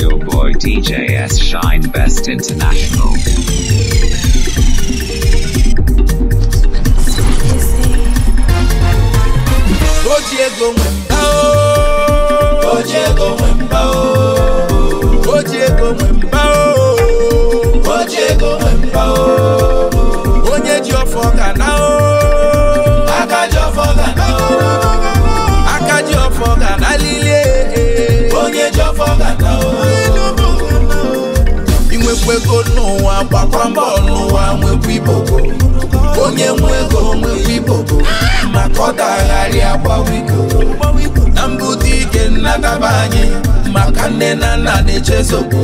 your boy DJ S. Shine Best International. oh, ego nwe oh, o oji oh, nwe mba onye n'ụwa gbakwa mbọ n'ụwa nwekwa ibobo onye nwego ego nwekwa ibobo maka ọ dagharị agbawa iko na ụdị ike nnagaba anyị maka nne na nna na-echezobo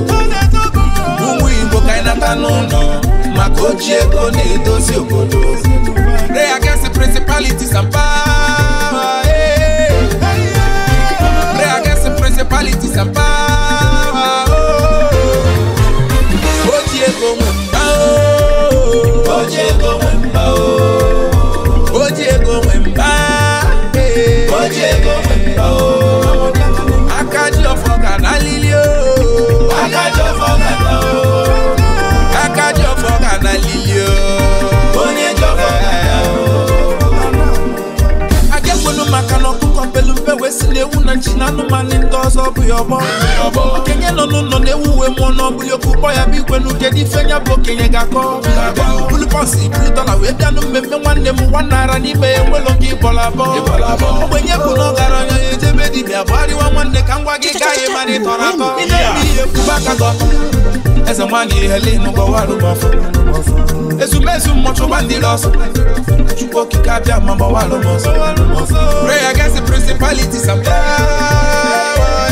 ụmụ igbo ka anyị n'ụlọ maka oji ego na-edozi obodo pray oji ego nwe mba oji ego nwe mba oji ego nwe mba oji ego nwe mba aka ji ọfọ ga na alili o ọfọ kwesịrị ewu na nchi na anụmanụ ndị ọzọ ọ bụghị ọgbọ okenye nọ n'ụlọ na-ewu uwe mmụọ na ọbụghị okwu kpọ ya bụ igwe n'ugede ife nya bụ okenye ga-akọ bulu bọọsụ iburu dọla wee bịa na mmemme nwanne m nwanne ara n'ime ya enwelo gị bọla abọọ ogbenye bụ na ọgaranya ya ejebe dibịa bụ arịwa nwanne ka m gwa gị gaghị mara ịtọrọ atọ eze nwa gị ihele n'ụgbọwa arụgba ọfọ ezumezu mmọchụgba ndị ọsọ chukwu okike abịa ma gbawa alụmọsọ pray against the principalities and power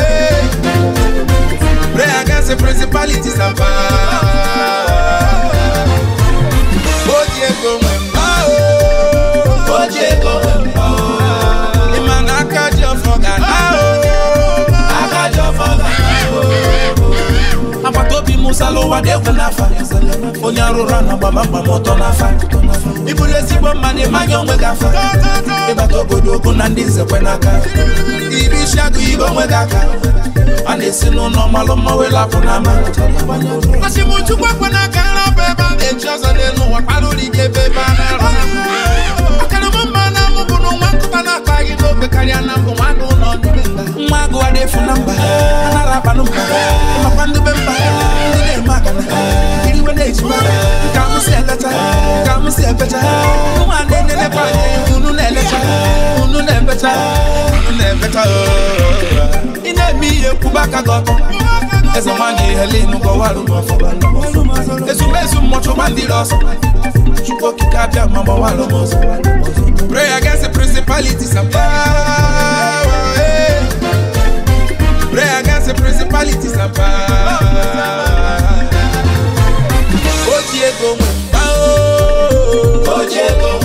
pray against the principalities and power o ji ego nwe mma o oh. o ji ego nwe amụsala ụwa ga-egwu n'afa onye ụra na gbamgbam ọtọ n'afa ịbụrụ ezigbo mmadụ ịmanya onwe gị afa ịbata obodo okwu na ndị nzekwe n'aka Ibi isi agụ ibe onwe gị aka a na-esi n'ụlọ malụ mma wee lapụ n'ama achịmchukwu ekwe n'aka nrapụ ebe a na-eji ọzọ n'elu ụwa kpara ụlọike ebe ebe a na-arụ akarịma mma na nwa n'ụwa nkụta na akpa gị n'oge karịa na mbụ nwadụ ụlọ namba nwa agụ adị efu namba anara akpa namba makwa ndube mba ndị na-eme akana iriwe na-ejima ka m si eleta ka m si ebecha ụmụ ndị na-elekwa anyị unu na-elecha unu na-ebecha unu na-ebecha ị na-eme ihe kwuba aka gị ọtọ eze nwanyị ihele ịnụgọ warụ n'ọfụba ezumezu mmụchụ gbandiri ọsọ chukwu okike abịa ma gbawarụ m ọzọ pray against the principalities and powers say principalities and power. Ojie go mumba oh Diego. go mumba.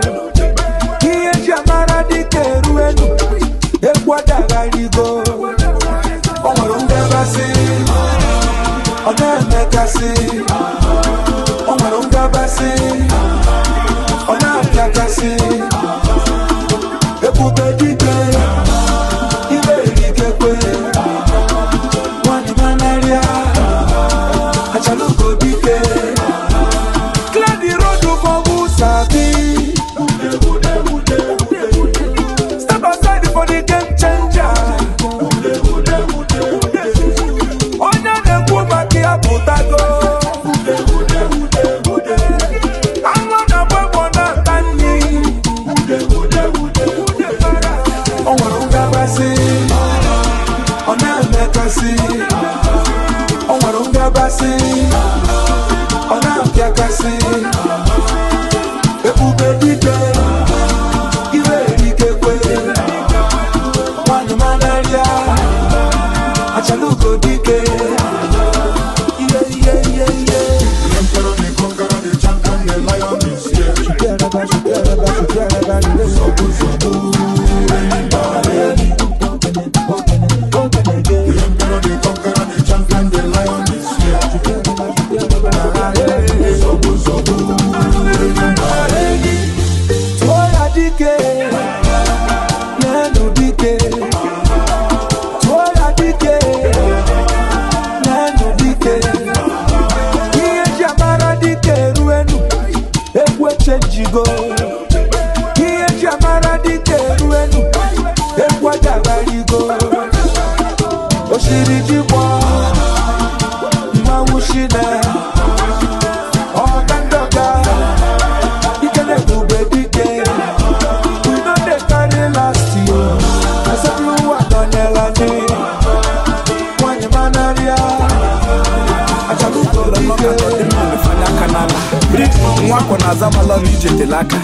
azamalọ na ije tele aka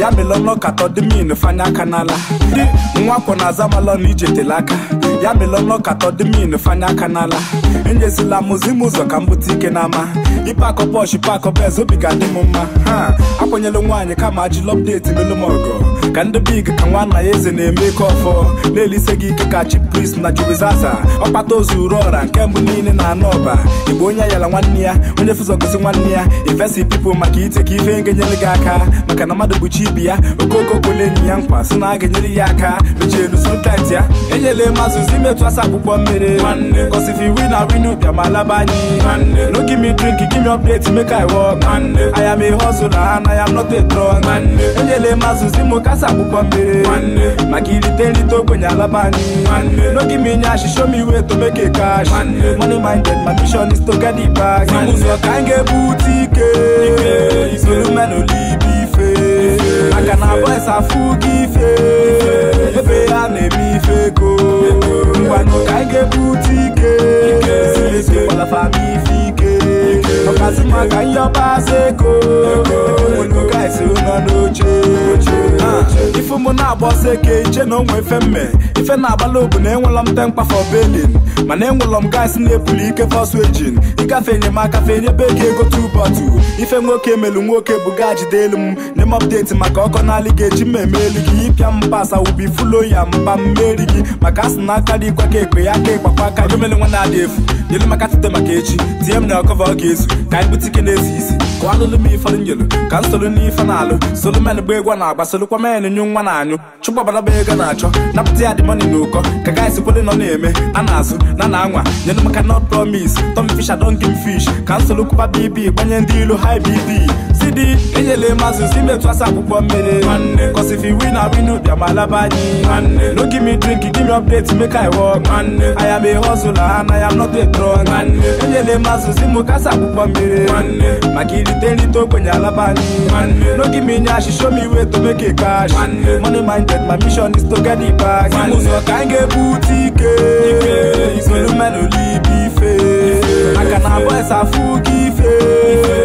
ya melọnọ katọ dị min fanye aka n'ala ndị nwakwọ na azamalọ na ije ya melọnọ katọ dị min fanye aka n'ala enyezila mụzim ụzọ ka m bute ike n'ama ịpakọ pọsh pakọ bez obi ga-adị m mma ha akwanyela nwaanyị kama ajụla ọpdeti melụ m ka ndị big ka nwanna ya eze na-eme ike ọfọ na-elise gị ike ka chi pris na jubizaza ọkpata ozu uru ọra nke mbụ niile na anụ ọba igbo onye ayala nwanne ya onye fụzọ gosi nwanne ya ifesi pipụl maka ite ka ife nge enyere gị aka maka na mmadụ bụchi ibi ya okoko kwele enyi ya nkwa sị na a ga-enyere ya aka mechielu sụntat ya enyela mazụzi imetụ asa akwụkwọ mmiri gosi na winu bịa ma laba anyị no give me drink give me update make I work I am a hustler and I am not a drug enyela mazụzi m kasa akwụkwọ mmiri maka irite nrite ogbenye alaba anyị no give me nyash show me way to make cash money minded my mission is to get it back ụzọ ka anyị ga-ebu ike Se lume nou li bife Maka nan boy sa fuki fe Vepe ane bife ko Mwa nou ka ge boutike Se lise wala fa mifi ke Mwa zi maka yobase ko Mwen nou ka se lume nou che ifu mụ na-agba ọsọ eke iche na onwe ife mme ife na-agbala obu na enwelọ m temkpa fọ belin mana enwelọ m gaasị na-ebuli ike fọsụ ejin ịgafe enyemaka fe enyebe gị ego tubatu ife nwoke melu nwoke bụ gaa jide elu m nye m ọpdeti maka ọkọ na-alị ga-eji mmemme elu gị ịpịa m pasa ubi fulo ya mba mmeri gị maka asị na aka dị ikwa ka ekpe ya ka ịkpakwa aka gomele nwa na-adị efu nyelu maka tite maka echi tie m na ọkọva ọ ka anyị butike na-esi isi gbanụlụ m ifọdụ njelu ka m solu n'ife na-alụ solu men bụ egwu na-agba solukwa men nyu nwa na-anyụ chụgbabaraba ego na-achọ napụta ya dị mọni na ụkọ ka gaịs kwele nọ na-eme a na-azụ na na anwa nyelu maka not promise tom fish adon fish ka m kụba bb gbanye ndị ilu hi bb Enye le mazou si me twa sa pou pwambe de Kwa se fi win a win ou diya malaba di Non ki mi drink ki ki mi update ti me kay wak Ay am e honsou la an, ay am not e dron Enye le mazou si mou ka sa pou pwambe de Maki di ten li ton kwenye alaba di Non ki mi nyashi show mi we to meke kash Money my debt, my mission is to geni bag Si mou so ka enge boutique Yikou lume nou li bife A ka nanbo e sa fuki fe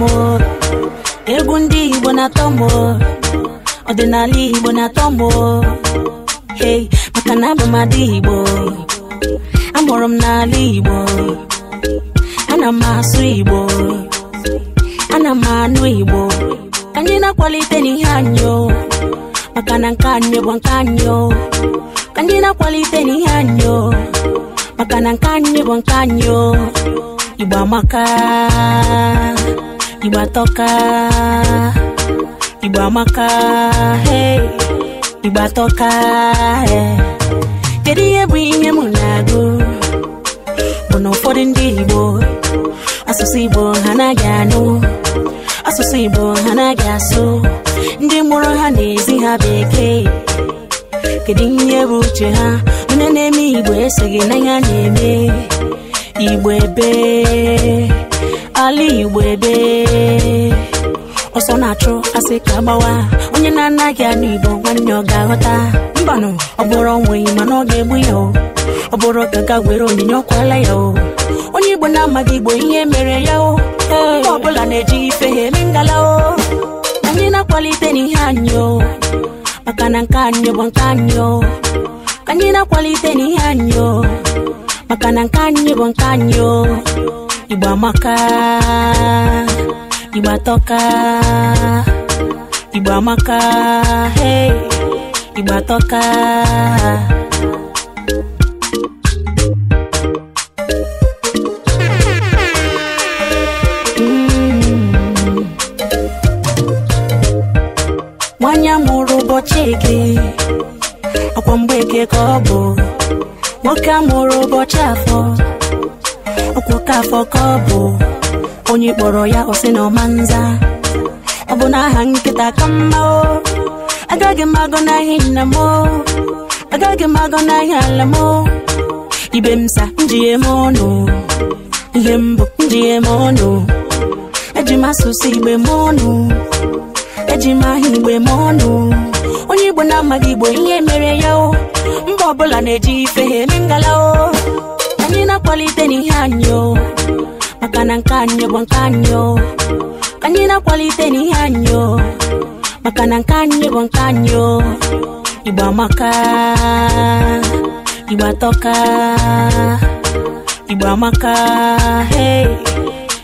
atọmọ egwu ndị igbo na-atọmọ ọdịnala hey makana na abụ m adị igbo amụrụ m n'ala igbo ana m asụ igbo ana m anụ igbo anyị na-akwalite n'ihe anyị maka na nke anyị bụ nke anyi anyị na-akwalite n'ihe anyị maka na nke anyị bụ igba tɔka igba maka igba tɔka kedu ihe bụ ihe m na-agụ bụ na ụfọdụ ndị igbo asụsụ igbo ha naghị anụ asụsụ igbo ha naghị asụ ndị mụrụ ha na-ezi ha bekee kedu ihe bụ uche ha onye na-eme igbo esoghị na ya na-eme igbo ebee ala igbo ebe ọsọ na-achụ asị ka gbawa onye na-anaghị anụ igbo nwanne ọ ga-aghọta mbanụ ọ bụrụ onweghị mana ọ ga-egbu ya o ọ bụrụ ka were onyinye ọkwala ya o onye igbo na-amaghị igbo ihe mere ya o mgbe ọbụla na-eji ife ha eme ngala o anyị na-akwalite n'ihe anyị o maka na nke anyị bụ nke anyị o anyị na-akwalite n'ihe anyị o maka na nke anyị bụ nke anyị o Iba maka Iba toka, Iba maka hey, Iba toka. gị ọkwa kobo ka ọ bụ nwoke ọkwụka afọ ka ọ bụ onye kpọrọ ya ọ na ọmanza ọ bụ n'aha nkịta ka mma o agaghị m agọ n'ahịa nna m agaghị m agọ n'ahịa ala m ibe m sa njighe m ọnụ ihe mbụ njighe m ọnụ eji m asụsụ igbe m ọnụ eji m ahịa igbe m ọnụ onye igbo na-amaghị igbo ihe mere ya o mba ọbụla na-eji ife ha eme ngala o na kwalite ni hanyo makana nkanyo bwankanyo kanyina kwalite ni hanyo makana nkanyo bwankanyo iba maka iba toka iba maka hey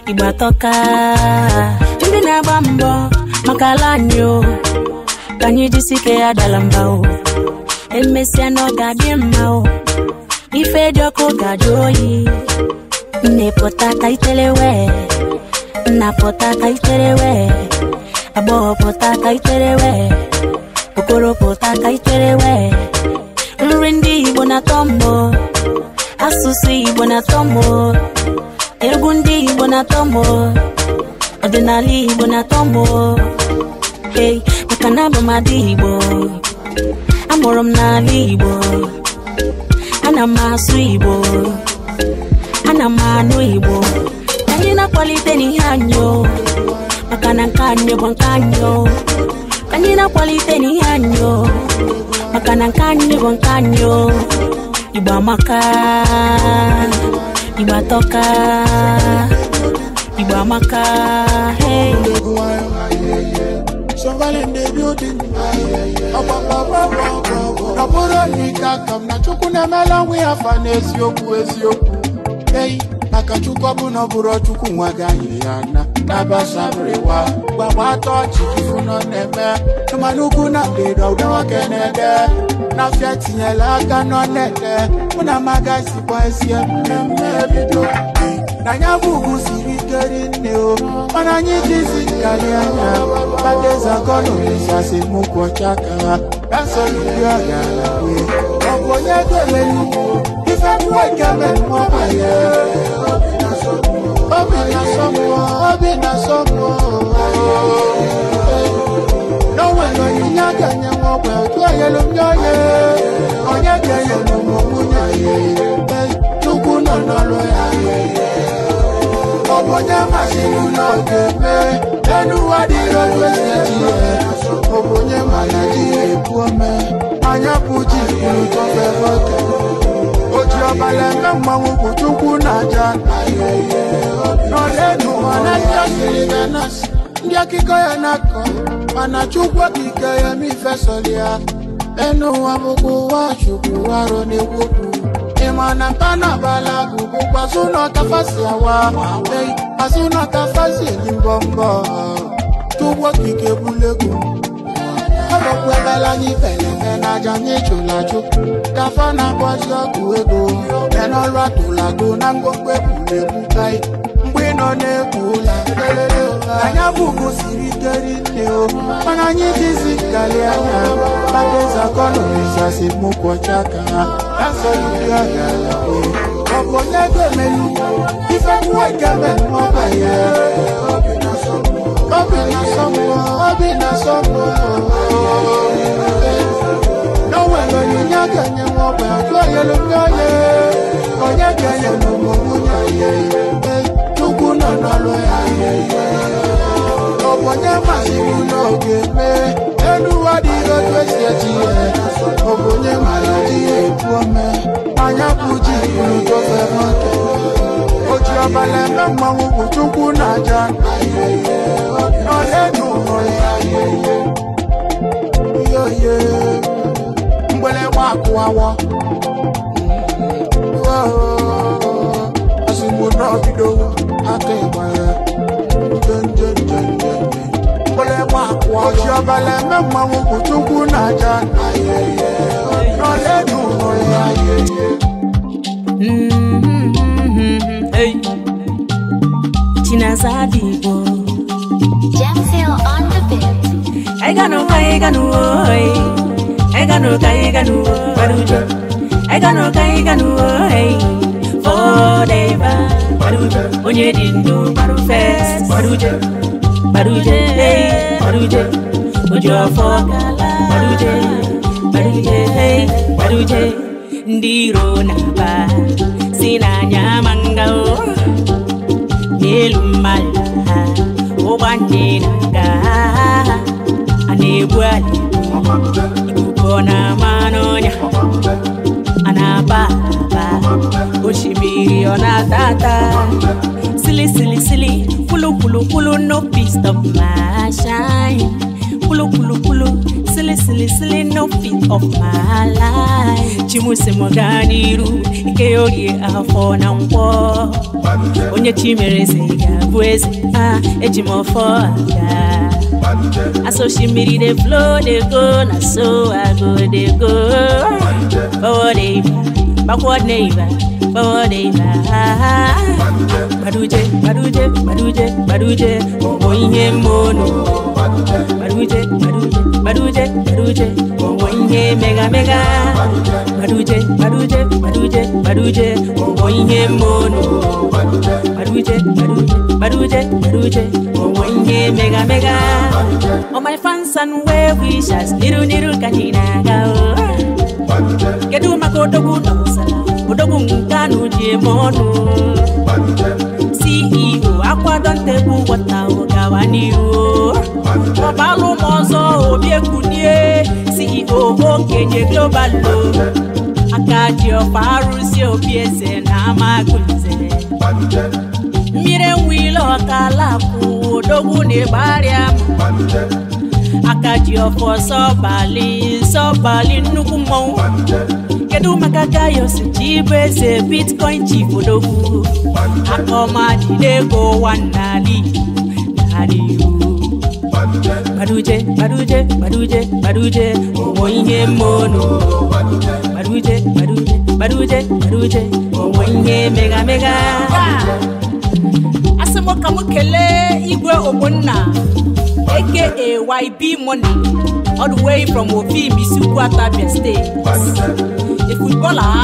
ibwa toka chumbi na bambo makalanyo kanyi jisike ya dalambao emesia no gadimao ife dị ọkụ ga-ajụ oyi nne pụtata itere wee nna pụtata itere wee agbọghọ pụtata itere wee okoro nri ndị igbo na-atọ mbọ asụsụ igbo na-atọ mbọ egwu ndị igbo na-atọ mbọ ọdịnala igbo na-atọ mbọ hey maka na abụ adị igbo amụrụ m n'ala igbo ana m asụ igbo ana m anụ igbo anyị na-akwalite n'ihe anyị maka na nke anyị bụ nke anyị anyị na-akwalite n'ihe anyị maka na nke anyị bụ nke anyị igbo amaka igbo atọka igbo amaka hey. surviving the building. ọ bụrụ na ike aka m na chukwu na-emela nwa ya afa n'eziokwu eziokwu ei maka chukwu ọbụla ọ bụrụ chukwu nwa ga anyị ya na ọchị nọ na-eme mana ugwu na ndịda nwoke na-ede n'afịa tinyela aka nọ na-ede mụ na mmemme bido na anya bụ siri ike rinne o mana anyị jizi nkarị anya padezagọnụrisasemokwu ọcha ka ha ka nsọrọ ndị ọ gara wee ọ bụ onye dere nnukwu ife mmụọ nke mmụọ banye obi na sọmụọ obi na sọmụọ n'onwere onyinye a ga-enye nwa ọgba ndị onye onye ga-enyere ụmụ nwunye ya tukwu nọ n'ọrụ ya Oja mashinu no tepe Enu wadi rojwe seji Obonye malaji epuome Anya puji kuru tofe fote Oji obalenge mwangu kuchukwu na jana Nolenu wanatya siliganasi Ndị akụkọ ya na-akọ mana Chukwu okike ya mi ya enu ụwa bụkwa ụwa Chukwu arụ na-ekwokwu ịma na mpa na abala bụ bụkwa zụ n'ọkafasi awa asinata fasili mbọmbọ tugbo kike bulegwu ọlọkwebela n'ifeleke n'aja n'ijulaju dafa na-agbazi ọgwụ ego menọlụ atụlago na ngwongwo egwuregwu mgbe ị nọ na-egwu ụlọ anyị abụghị siri ike rinne o mana anyị jizi gari anya badezakọnọrizasi mụkwọcha ka ha na-asọ ndị ọrịa ọ̀pọ̀ lẹ́gbẹ̀ẹ́ mẹ́lú fífẹ́ mú ẹ̀gẹ́ mẹ́lú ọmọ ẹ̀yẹ. Obìnrin sọ́mọ́ obìnrin sọ́mọ́ obìnrin sọ́mọ́. N'ọ̀wẹ̀ lọ ní nyàgẹ̀ ní wọn bẹ̀ ọ̀tún ọ̀yẹ́ ló ní ọ̀yẹ́. Ọ̀nyẹ́gẹ̀ yẹ̀ ló ye. mú ní na yẹ. Tukú náà nọ lọ ayé yẹ. Ọ̀pọ̀ nyẹ́ màsíwú náà gé mé. Ẹnu wá di lọ́jọ́ ìṣẹ́jì yẹ. Ọ̀pọ̀ nyẹ́ màlá di èkú ọmọ ẹ̀ anya puji iru Joseph Ake Oji abalị ebe mmanwụ bụ Chukwu na aja n'ọdịnu yoye mgbele nwa akụwawo ozugbo n'ọbido aka ịgba ya Oji abalị eme mmanwụ bụ Chinazadi Igbo Jamfil on the beat Eganu ka eganu oi Eganu ka eganu Baruja Eganu ka eganu oi Fodeba Baruja Onye di ndu baru fest Baruja Baruja hey Baruja Ojo afọ kala ndị iro na-aba si n'anya ma ngao n'elu mmadụ ha ụgbọ ndị na-aga a na-egbu anyị ikuku na-ama n'ọnya a na-aba aba silly silly silly kwulu no peace stop my shine Kulo kulo kulo, sile sile sile no fit of my life. Chimuse moganiru, ikeyorie afọ na nkwọ. Onye ga ah, eji aga. Aso shimiri dey flow go, na so I go go. bakwadeiva bakwadeiva baduje baduje baduje baduje obo ihe baduje baduje baduje baduje obo mega mega baduje baduje baduje baduje obo ihe baduje baduje baduje baduje obo mega mega all my fans and where we shall niru niru kanina gao kedu maka odogwu na ụsa odogwu nke a n'uji eme ọnụ si iwo e akwado ntegbu wata ụgawa n'ihu ọbalụ ma ọzọ obi ekunie si iwo e okenye globalo aka ji ọfa arụzi obi eze na amagụze mmiri enwe ile ọkala kwụ odogwu na ịgbarịa akaji ọfọ sọbali sọbali nnukwu mmọnwụ kedu maka gayos ji bụ eze bitcoin chief odogwu aka ọma jide ego ụwa n'ala igbo gbaduje gbaduje gbaduje gbaduje ụmụ ihe mmonụ gbaduje gbaduje gbaduje gbaduje ụmụ ihe mega mega mbụ ka m kelee igwe ogbonna aka YB Money all the way from Ofim Isiukwu Atabia State a footballer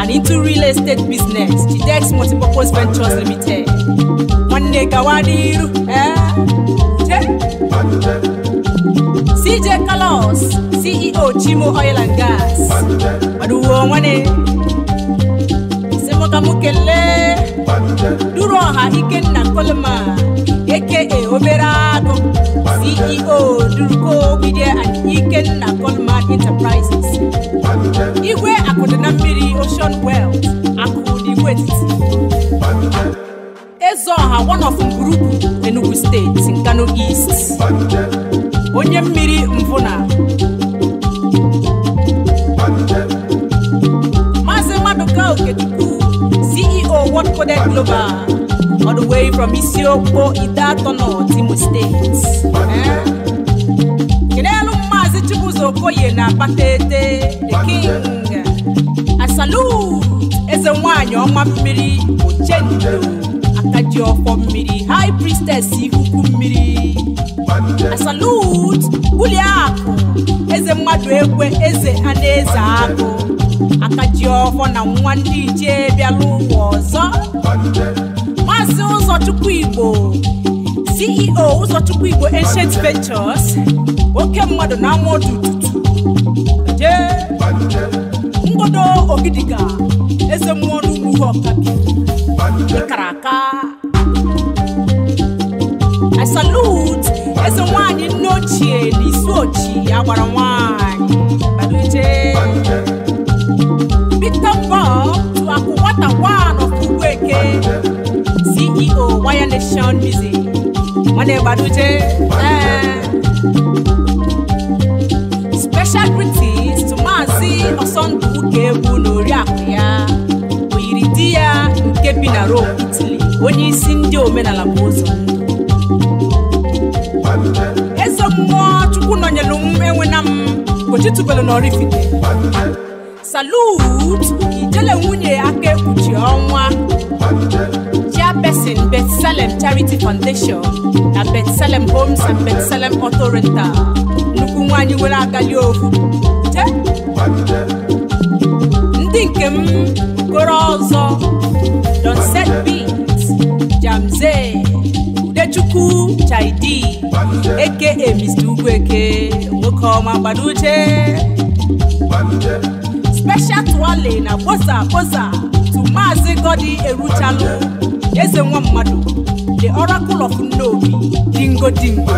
and into real estate business Chidex Multipurpose Ventures Limited nwanne gawa n'iru eh? CJ Kalos CEO Chimo Oil and Gas maduwo nwane ọzọ m kelee duru ọha ikenna coleman eke obere agụ ceo duruko media ikenna coleman enterprises igwe akụdị na mmiri ocean wells akụdị ọha ọha one of Mburugu enugu steeti Nkano east onye mmiri mvụna maazị Maduka Okechukwu forward coded global all the way from Isiokpo Idatono Timu States. Eh? Kedelu Mazi Chibuzo Koye na Patete, the king. I salute Eze Nwanyi Ọma Mmiri Ochendo. aka ji ọfọ mmiri high priestess ikuku mmiri salut bulie akụ eze mmadụ ekwe eze na eze akụ aka ji ọfọ na nwa ndị ichie bịala ụwa ọzọ maazị ụzọchukwu igbo ceo ụzọchukwu igbo ancient ventures oke mmadụ na ama ọdụ tutu jee ngodo ogidiga eze mmụọ n'ugwu I salute as a one in Nochi, Nisochi, Awarawani, Baduje. Victor Bob to Akuwata one of Kuweke, CEO, Wire Nation Music. Mane Baduje. Eh. Special greetings to Mazi Osonduke, Buke nke bi na Rome Italy onye isi ndị omenala bụ ụzọ eze mmụọ chukwu nọnyelu m enwena m gochitubelu na Oraifite salut ijele nwunye aka ekpuchi ọnwa chairperson selem Charity Foundation na selem Homes and Bethsalem selem Rental nnukwu nwaanyị nwere agali ovu ndị nke m okoro ọzọ Don set beat Jamze Udechukwu Chidi eke Mr. nwoke ọma gbanuche special twale na kposa kposa tu maazi Godi Eruchalụ eze nwa mmadụ the oracle of nnobi dingo dingo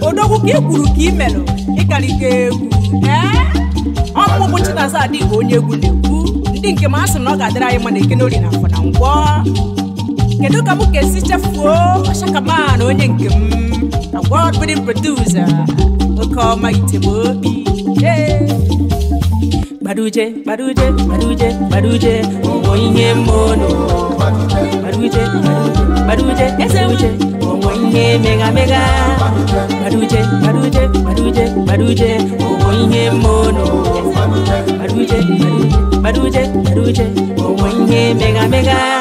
odogwu ka ị ka ị merụ egwu ee eh? ọmụmụ Chinaza adịghị onye egwu na-egwu ndị nke m a sị na ọ ga-adịrị anyị mma na na afọ na ngwọ kedu ka m esi chefuo onye nke m oke ọma gbaruje gbaruje gbaruje gbaruje ihe gbaruje gbaruje eze uche ihe mega mega gbaruje gbaruje gbaruje gbaruje ọwọ ihe mmono gbaruje gbaruje baduje baduje omwenye mega mega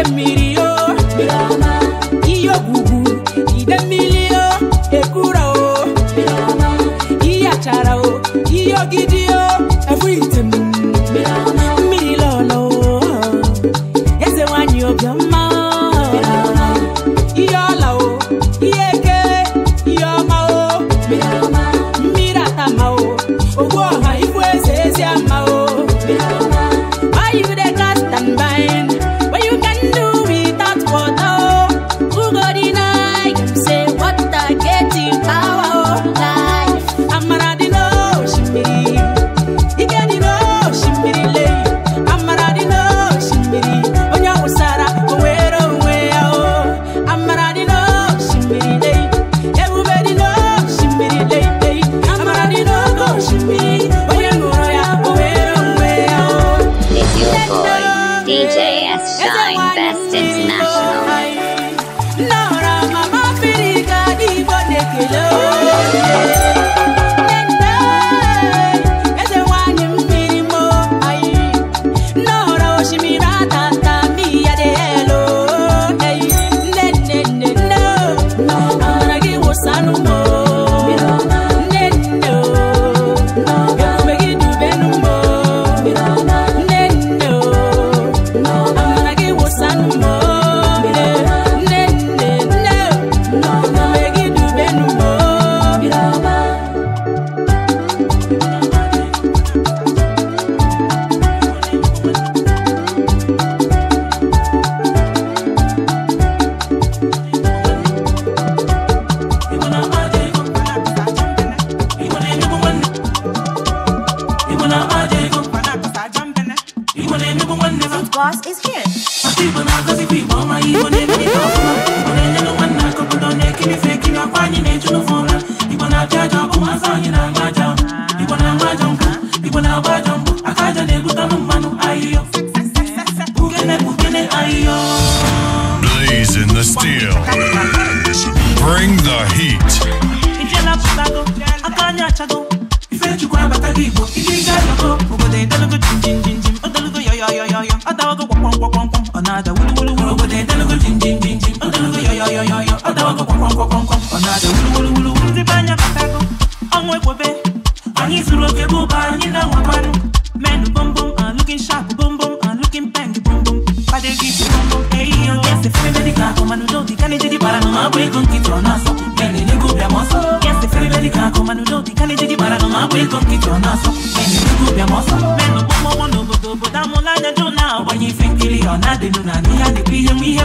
oke mmiri o ihe ogwugwu ide mmiri o ekwura o ihe achara o menụ n'obodo obodo amụla anya na-agbanye ife nkiri ọ na-adịnụ na ihe a ihe nwe ihe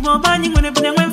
gboo anyị nwere nwe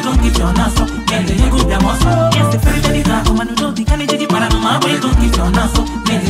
don't give your naso up. Yes, the ferry jadi za Omanu do di kani jadi para no ma boy don't give your naso oh, up.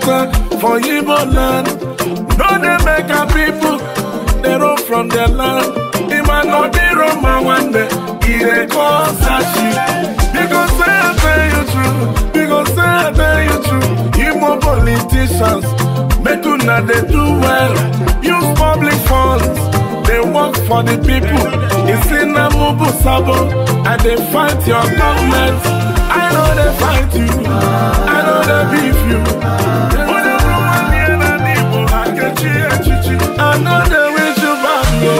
scatter for Igbo land. No dey make our people dey run from their land. Ima no be Roma one day, e dey cause sashi. Because say I tell you true, because say I tell you true. Igbo politicians, make una dey do well. Use public funds. work for the people. It's in a mobile sabo, and they fight your government. I know they fight you, I know they beef you. I know they wish you back, no.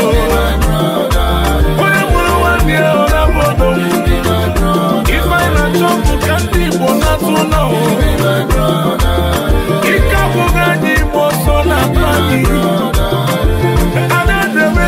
If I not jump, can't people not to know? If I go, I'm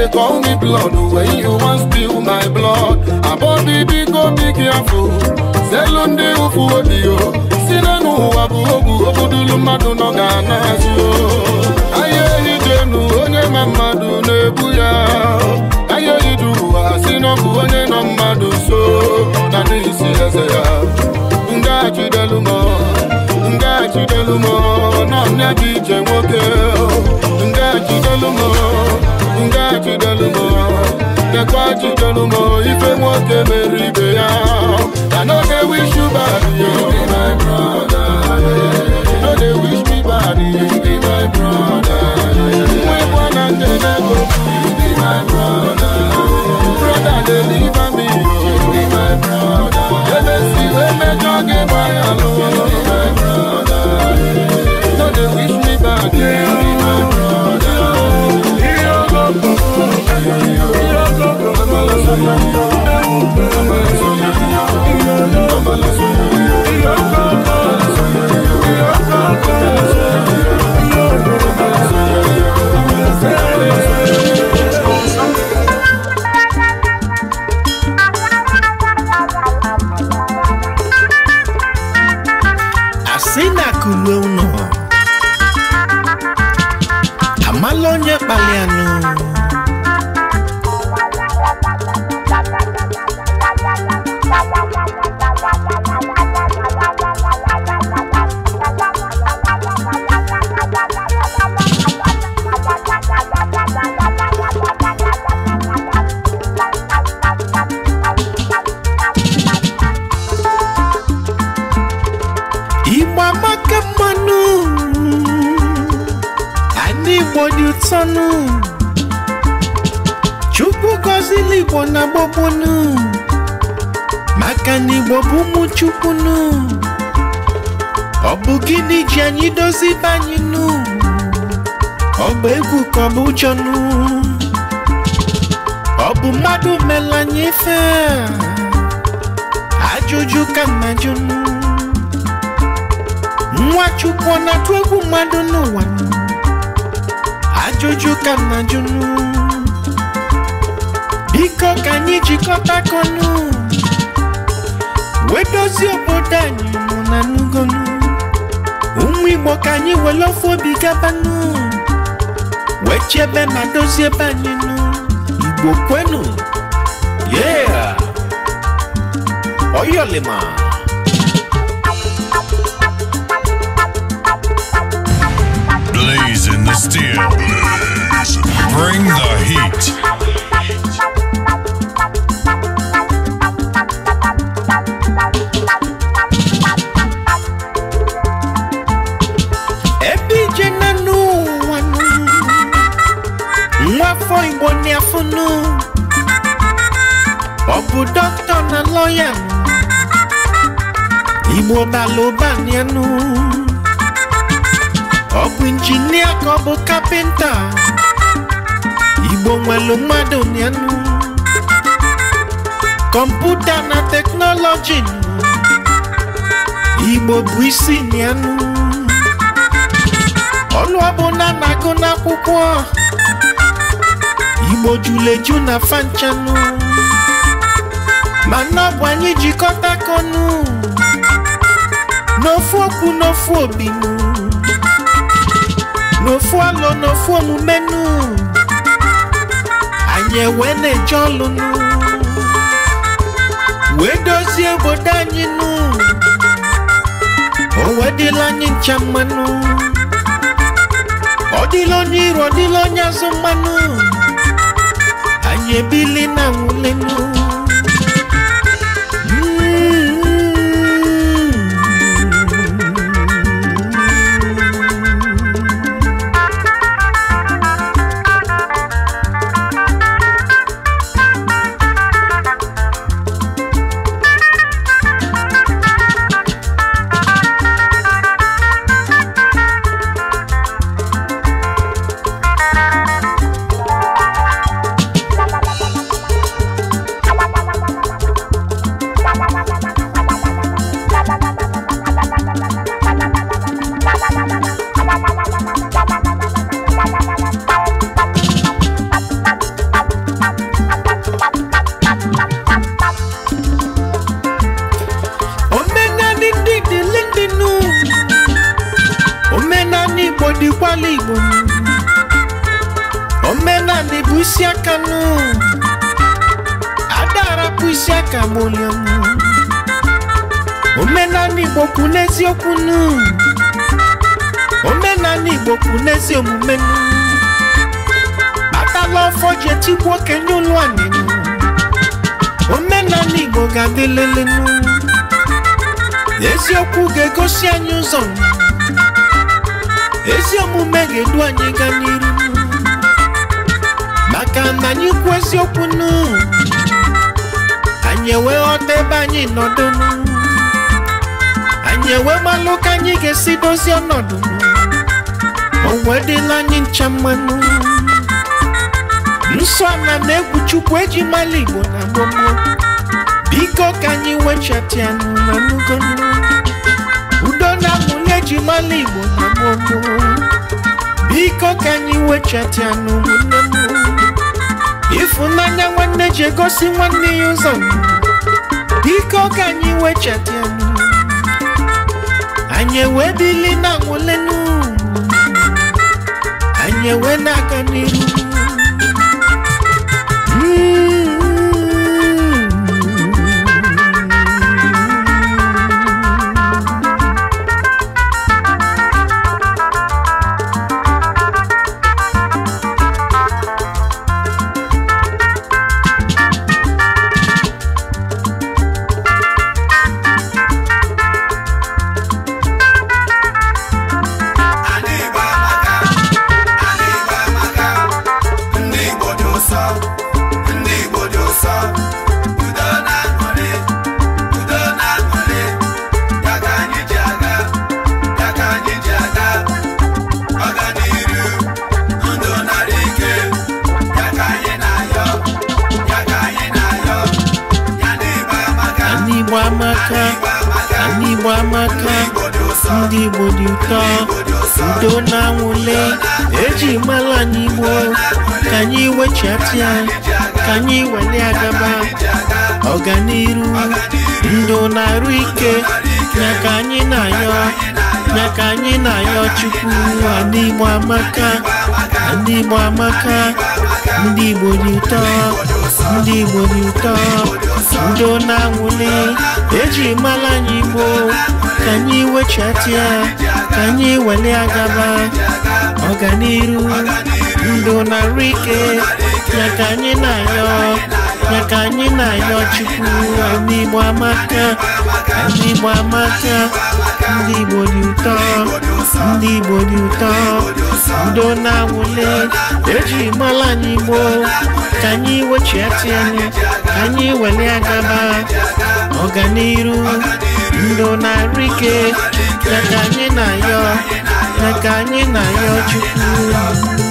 they call me blood When you want spill my blood About the big go be careful Zelunde ufu odio Sinanu wabu ogu Obudulu madu no gana zio Aye hidenu onye mamadu nebu ya Aye hiduwa sinobu onye no madu so Nani isi eze ya Nga chidelu mo Nga chidelu mo Nanya jije mwoke Nga chidelu mo ngaji ife ya i wish you bad yo my brother yeah. wish me bad be my brother never be my brother brother live me be my brother be my brother wish me bad be my brother. Yeah. Igbo kwenu yeah Oyolima Blaze in the steel Bring the heat koyam imwota loba nianu ọbụ injinia ka ọ bụ kapịnta igbo nwelu mmadụ nianu kọmputa na teknọlọji igbo bụ isi nianu ọnụ ọbụla na-agụ n'akwụkwọ igbo juleju na fanchanụ mana ọ bụ konu, jikọtakọ ọnụ n'ofu okwu n'ofu obinu n'ofu alo n'ofu omume nu anyị ewee na-eje ọlụ nu wee dozie obodo anyị o wedịla anyị ncha mmanụ ọ dịla onye iro mmanụ anyị ebili na nwulenu anyị ewee malụ ka anyị ga-esi dozie ọnọdụ onwe dịla anyị ncha mmanụ nsọ na na-egwu chukwu eji mala igbo na gbogbo biko ka anyị wechatianụ na udo na nwunye eji mala igbo na gbogbo biko ka anyị wechatianụ ụmụnne m ịfụnanya nwanne ji egosi nwanne ya ụzọ biko ka anyị wechatianụ anyị ewee dịli na nwụlenu anyị ewee na-aga n'iru udo na-anwụle eji mara anyị ka anyị wechata ya ka anyị wele agaba ọganiru ndo na-arụ ike nyaka anyị na-ayọ nyaka anyị na-ayọ chukwu ndị amaka ndị igbo amaka ndị igbo dị ụtọ ndị igbo dị ụtọ ndo na-anwụle eji mara anyị igbo ka anyị wechati ya ka anyị agaba ọganiru ndụ rike, ike ya ka anyị na-ayọ ya ka anyị na-ayọ chukwu ndị igbo amaka ndị igbo amaka ndị igbo ndị igbo dị ụtọ udo na-awụle eji mala ya ka anyị agaba ọganiru ndụ na ike ya ka anyị na-ayọ ya ka anyị na-ayọ Chukwu